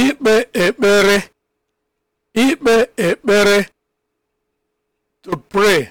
ikpe ekpere ikpe ekpere to pray